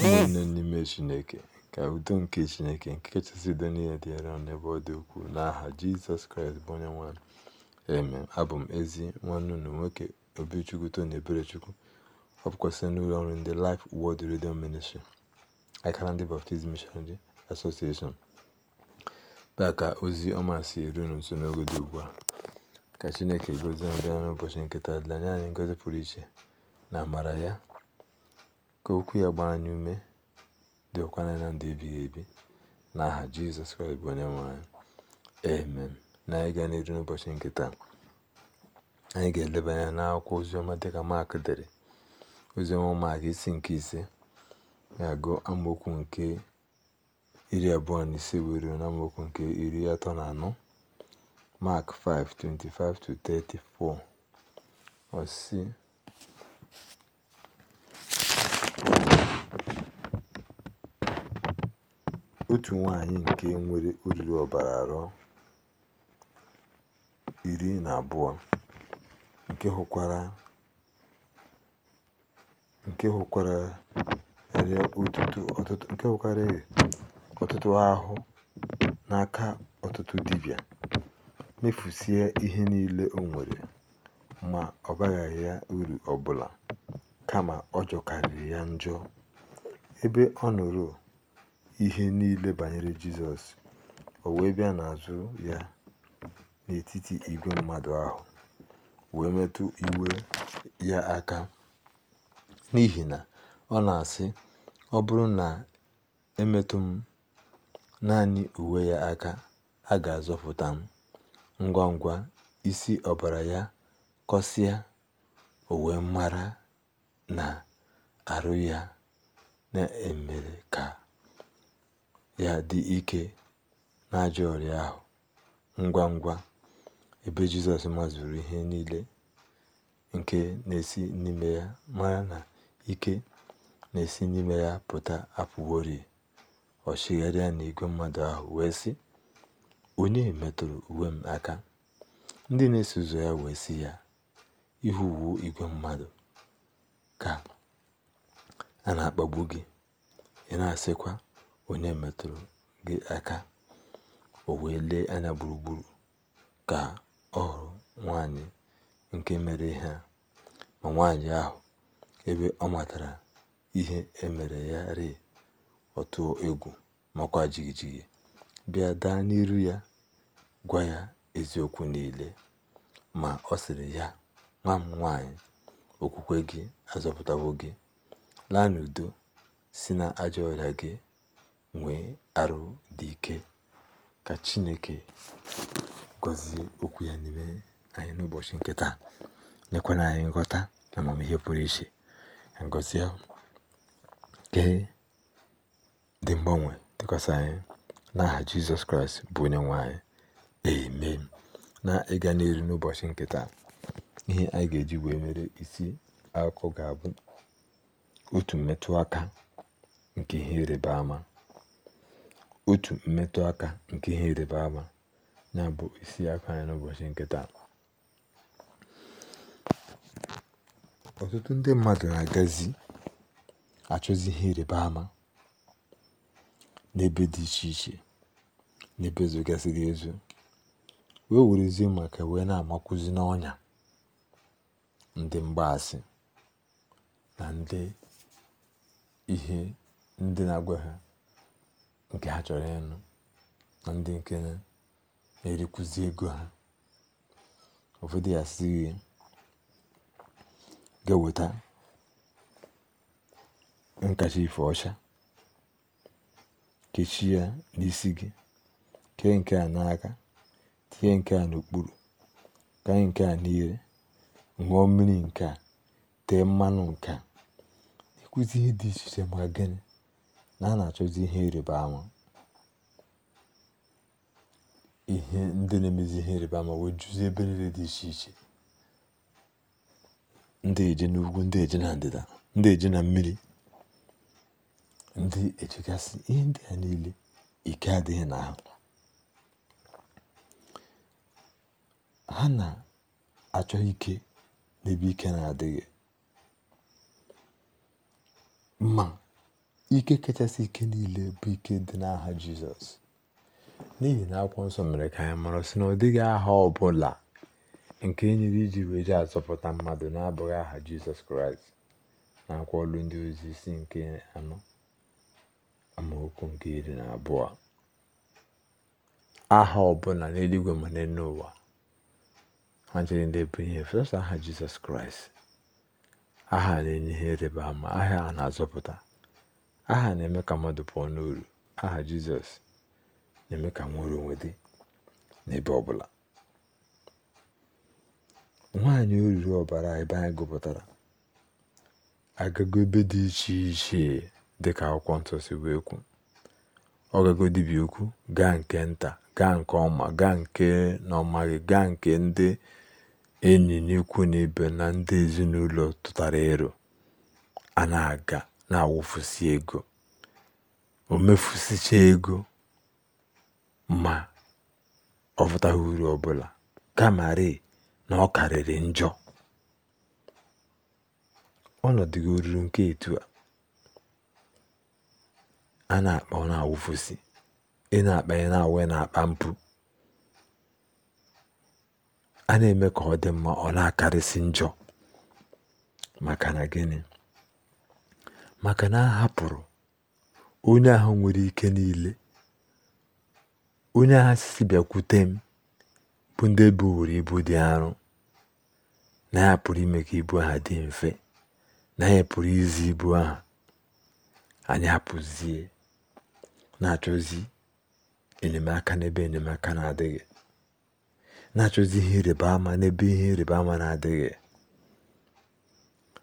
ụmụnne n'ime Chineke. Ka udo nke Chineke nke kachasị udo niile dị n'ebe ọ dị ukwuu n'aha Jizọs Kraịst bụ onye nwa anyị. Abụ m ezi nwanne unu nwoke Obichukwu Tony Eberechukwu ọ bụkwasị n'ụlọ ọrụ ndị Life Word redio Ministry akara ndị baptizm Missionary Association taa ka ozi ọma si eru unu nso n'oge dị ugbu a ka Chineke gozie ndị ọrụ ụbọchị nketa dịla anyị ngozi pụrụ iche na amara ya Ka okwu ya gbaa anyị ume dị ụkwana na ndụ ebighị ebi n'aha Jizọs Kraịst bụ onye nwe anyị. Na anyị gaa n'iru n'ụbọchị nke taa, anyị ga-eleba anya n'akwụkwọ oziọma dịka Mak dere oziọma Mak isi nke ise ya agụ amaokwu nke iri abụọ na ise wee ruo na amaokwu nke iri atọ na anọ Mak 5:25-34 ọ sị otu nwanyị nke nwere olulu ọbara arọ iri na abụọ, nke hụkwara hụkarịrị ọtụtụ ahụ n'aka ọtụtụ dibịa, mefusie ihe niile o nwere, ma ọ baghị ya uru ọbụla kama ọ jọkarịrị ya njọ. Ebe ọ nọrọ ihe niile banyere Jizọs, o wee bịa n'azụ ya n'etiti igwe mmadụ ahụ, wee metụ iwe ya aka, n'ihi na ọ na-asị, “Ọ bụrụ na emetụ m naanị uwe ya aka, a ga-azọpụta m.” Ngwa ngwa, isi ọbara ya kọsịa, owe wee mara na arụ ya na-emere ka ya dị ike n'ajọ ọrịa ahụ ngwa ngwa ebe jizọs mazuru ihe niile nke na-esi n'ime ya mara na ike na-esi n'ime ya pụta apụworị ọ na n'igwe mmadụ ahụ wee sị onye metụrụ uwe m aka ndị na-eso ụzọ ya wee sị ya ihu uwe igwe mmadụ ka a na-akpagbu gị ị na-asịkwa onye metụrụ gị aka o wee lee anya gburugburu ka ọ hụrụ nwanyị nke mere ihe ma nwanyị ahụ ebe ọ matara ihe emere ya rịị ọ egwu makwa jigijigi bịa daa n'iru ya gwa ya eziokwu niile ma ọ sịrị ya nwa m nwanyị okwukwe gị azọpụtawo gị laa n'udo si na ajọ ọrịa gị nwee arụ dị ike ka Chineke gọzie okwu ya n'ime anyị n'ụbọchị nke taa nyekwana anyị nghọta na amamihe pụrụ iche ngozie nke dị mgbanwe dịkwasị anyị n'aha Jizọs Kraịst bụ onye nwanyị anyị na ịga n'elu n'ụbọchị nke taa ihe anyị ga-eji wee mere isi akụkọ ga-abụ otu mmetụ aka nke ihe ịrịba ama otu mmetụ aka nke ihe ịrịba ama ya isi aka anyị n'ụbọchị nke taa. Ọtụtụ ndị mmadụ na-agazi achọzi ihe ịrịba ama n'ebe dị iche iche n'ebe zogasịrị ezo wee werezie maka wee na-amakwụzi n'ọnya ndị mgbaasị na ndị ihe ndị na-agwa ha nke ha chọrọ ịnụ na ndị nke na-erikwuzi ego ha ụfọdụ ya si ga-eweta nkacha ife ọcha kechi ya n'isi gị kee nke a n'aka tinye nke a n'okpuru kanye nke a n'ire ṅụọ mmiri nke a tee mmanụ nke a ịkụzi ihe dị iche iche ma gịnị na a na-achọzi ihe ịrịba ama ihe ndị na-emezi ihe ịrịba ama wee juzie ebe niile dị iche iche ndị na n'ugwu ndị eje na ndịda ndị eje na mmiri ndị ejegasị ihe ndị a niile ike adịghị na ha ha na-achọ ike n'ebe ike na-adịghị mma Ike kachasị ike niile bụ ike dị n'aha Jizọs. N'ihi na Akwụkwọ Nsọ mere ka anyị mara sị na ọ dịghị aha ọ bụla nke e nyere iji weje azọpụta mmadụ na-abụghị aha Jizọs Kraịst na akwụkwọ ọlụ ndị ozi isi nke anọ amaokwu nke iri na abụọ aha ọbụla n'eluigwe ma ụwa ha chere ndị bụ ihe fesa aha Jizọs Kraịst aha na-enye ihe ịrịba ama aha a na-azọpụta aha na-eme ka mmadụ pụọ n'uru aha jizọs na-eme ka nwere onwe dị n'ebe ọbụla nwaanyị oruru ọbara ebe anyị gụpụtara agago ebe dị iche iche dịka akwụkwọ nsọ si wee kwu ọgago dibia dibịa gaa nke nta gaa nke ọma gaa nke n'ọmaghị gaa nke ndị enyi n'ikwu na na ndị ezinụlọ tụtara ịrụ a na-aga na awụfusi ego, o ego ma ọ bọtaghị uru ọbụla bụla, kamarị na ọ karịrị njọ. Ọnọdụ ruru nke etu a a na akpa ọ na ị na akpa ị na-awụ na-akpa mpụ, a na eme ka ọ dị mma ọ na akarịsị njọ. Maka na gịnị? maka na a hapụrụ onye ahụ nwere ike niile onye ahụ sisi bịakwute m bụ ndị buworo ibu dị arọ na ya pụrụ ime ka ibu ha dị mfe na ya pụrụ izi ibu ahụ anyị hapụzie na-achọzi enyemaka n'ebe enyemaka na-adịghị na-achọzi ihe ịrịba ama n'ebe ihe ịrịba ama na-adịghị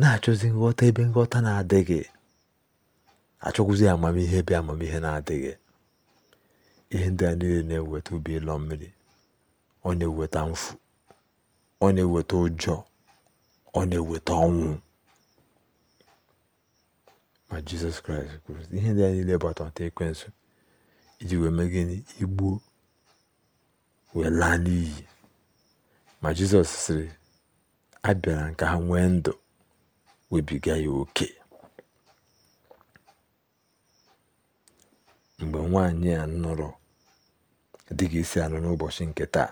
na-achọzi nghọta ebe nghọta na-adịghị achọkwụzi amamihe bịa amamihe na-adịghị ihe ndị a niile na-eweta ubi ịlọ mmiri ọ na-eweta mfu ọ na-eweta ụjọ ọ na-eweta ọnwụ ma jizọs kraịst kwuru ihe ndị a niile bụ atọmata ekwensu iji wee mee gịnị igbuo wee laa n'iyi ma jizọs sịrị abịara nke ha nwee ndụ webiga ya oke mgbe nwaanyị a nụrụ dị gị isi anụ n'ụbọchị nke taa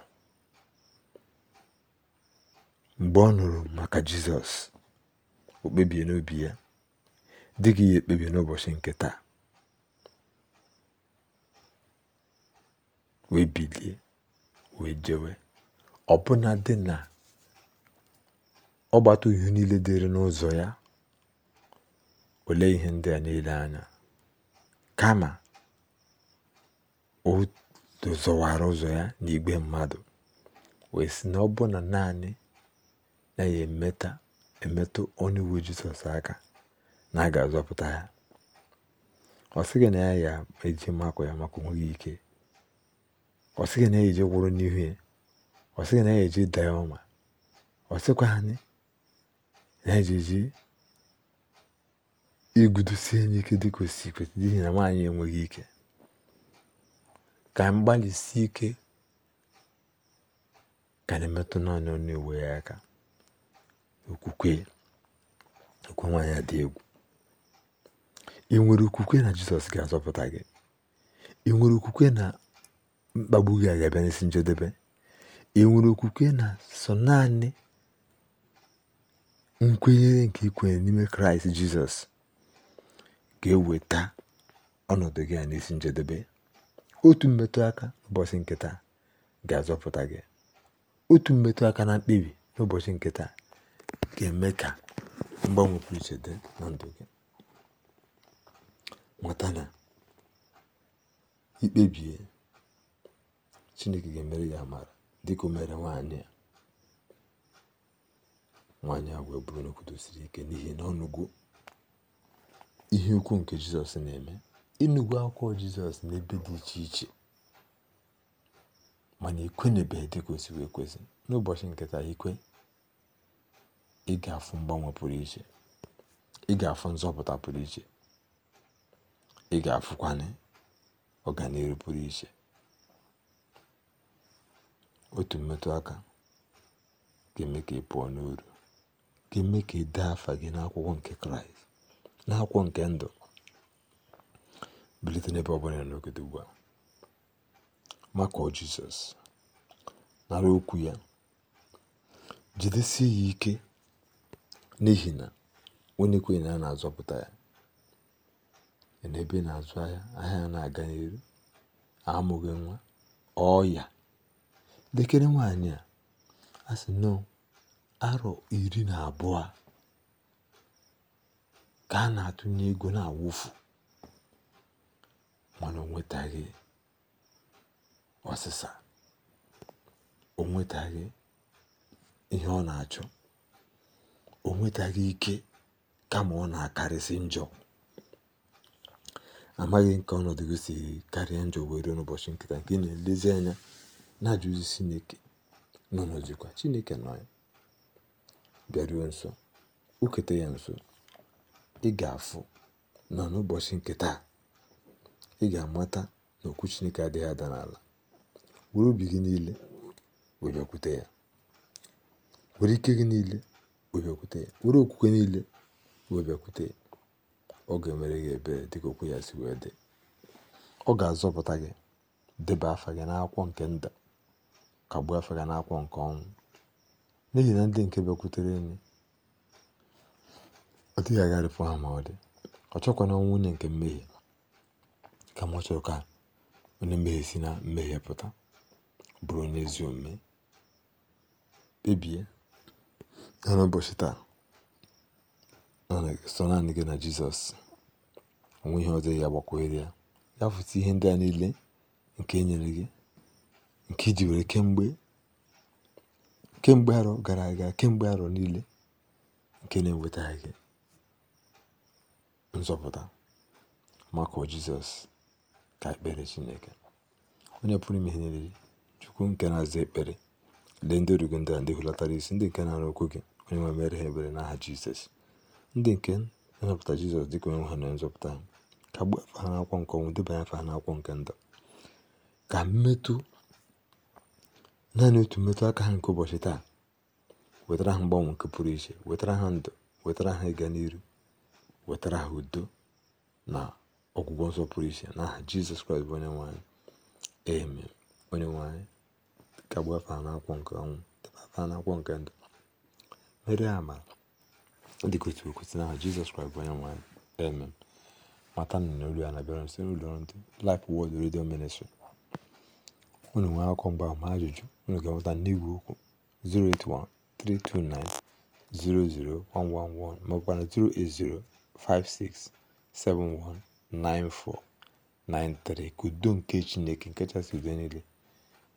mgbe ọ nụrụ maka jizọs o kpebie n'obi ya dị gị ya ekpebie n'ụbọchị nke taa wee bilie wee jewe ọbụna dị na gbata ihe niile dịrị n'ụzọ ya olee ihe ndị a niile anya kama o zọwara ụzọ ya n'igwe mmadụ wee si na ọ bụ na naanị na ya emeta emetụ onye uwe jizọs aka na a ga-azọpụta ya ọ sịghị na ya ya eji makụ ya maka onweghị ike ọ sịghị na ya eji gwụrụ n'ihu ya ọ sịghị na ya eji daa ya ọma ọ sịkwa anyị na ya eji igudosi enye ike dịka osi si kwesị n'ihi na nwaanyị enweghị ike ka anyị gbalịsie ike ka na-emetụta naanị onye ewe ya aka okwukwe okwu nwaanyị dị egwu ị nwere okwukwe na jizọs ga-azọpụta gị ị nwere okwukwe na mkpagbu gị ga-abịa n'isi njedebe ị nwere okwukwe na sọ naanị nkwenyere nke ikwenye n'ime kraịst jizọs ga-eweta ọnọdụ gị a n'isi njedebe otu mmetụ aka ụbọchị nke ga-azọpụta gị otu mmetụ aka na mkpebi n'ụbọchị nke ga-eme ka mgbanwe pụrụ dị na ndụ gị mata na ikpebie chineke ga-emere ya amara dịka o mere nwaanyị a nwaanyị a wee bụrụ n'okwudo siri ike n'ihi na ọnụgo ihe ukwu nke jizọs na-eme enugwu akwụkwọ Jizọs n'ebe dị iche iche mana ekwenyebeghị dị ka ekwesị na wee kwesị n'ụbọchị nketa ikwe ị ga-afụ mgbanwe pụrụ iche ị ga-afụ nzọpụta pụrụ iche ị ga-afụkwanye ọganihu pụrụ iche otu mmetụ aka ga-eme ka ị pụọ n'uru ga-eme ka ị dee afa gị n'akwụkwọ nke kraịst n'akwụkwọ nke ndụ bilite n'ebe ọbụla ya n'ogede ugbu a makụọ jizọs nara okwu ya jidesie ya ike n'ihi na onye kwenye na a na-azọpụta ya n'ebe na-azụ ahịa ahịa ya na-aga n'elu amụghị nwa ọya dekere nwaanyị a a sị arọ iri na abụọ ka a na-atụnye ego na-awụfu mana o nwetaghị ọsịsa o nwetaghị ihe ọ na-achọ o nwetaghị ike kama ọ na-akarịsị njọ amaghị nke ọnọdụ gị si karịa njọ were n'ụbọchị nkịta nke na-elezi anya na-ajụzi Chineke Chineke nọ ya bịaruo nso ukete ya nso ị ga nọ n'ụbọchị nkịta ị ga-amata na okwu Chineke adịghị ada n'ala were obi gị niile wee ya were ike gị niile wee ya were okwukwe niile wee ya ọ ga-emere gị ebere dịka okwu ya si wee dị ọ ga-azọpụta gị debe afa gị n'akwụkwọ nke nda kagbuo afa gị n'akwụkwọ nke ọnwụ n'ihi na ndị nke bịakwutere enyi ọ dịghị agharịpụ ha ma ọ dị ọ chọkwana ọnwụ nwunye nke mmehie ka m chọrọ ka onye mmehie si na mmehie pụta, bụrụ onye ezi omume. Kpebie ya n'ụbọchị taa sọ naanị gị na Jizọs. onwe ihe ọzọ ya ga ya. Ya fụta ihe ndị a niile nke enyere gị, nke iji were kemgbe kemgbe arọ gara aga, kemgbe arọ niile nke na enwetaghị gị nzọpụta. Makụọ Jizọs. ka ekpere chineke onye pụrụ ime ihe niile chukwu nke na-aza ekpere lee ndị origo ndị a ndị isi ndị nke na-arụ okwu gị onye nwe mere ha ebere n'aha jizọs ndị nke na-anapụta jizọs dịka onye nwe ha na nzọpụta ka gbuo afa ha n'akwụkwọ nke ọnwụ debanye afa ha n'akwụkwọ nke ndụ ka mmetụ naanị otu mmetụ aka ha nke ụbọchị taa wetara ha mgbanwe nke pụrụ iche wetara ha ndụ wetara ha ịga n'iru wetara ha udo na ọgwụgwọ nsọ pụrụ iche n'aha jizọs kraịst bụ onye nwanyị eme onye nwanyị ka gbafa n'akwụkwọ nke ọnwụ debata n'akwụkwọ nke ndụ mere amara dịka otu okwesị n'aha jizọs kraịst bụ onye nwanyị eme mata nọ n'olu ya na-abịara site n'ụlọ ndị Life Word Radio Ministry unu nwee akụkọ mgba ma ajụjụ unu ga-enweta n'igwe okwu 08132900111 maọbụkwa na 0805671 9493 ka udo nke chineke nke kachasị udo niile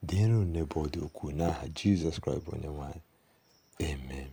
dịrị unu n'ebe ọ dị ukwuu n'aha jizọs kraịst bụ onye nwanyị anyị amen